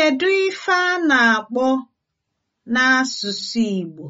Kedu ife a na-akpọ n'asụsụ Igbo?